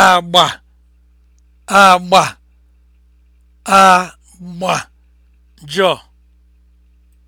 agba agba agba jọ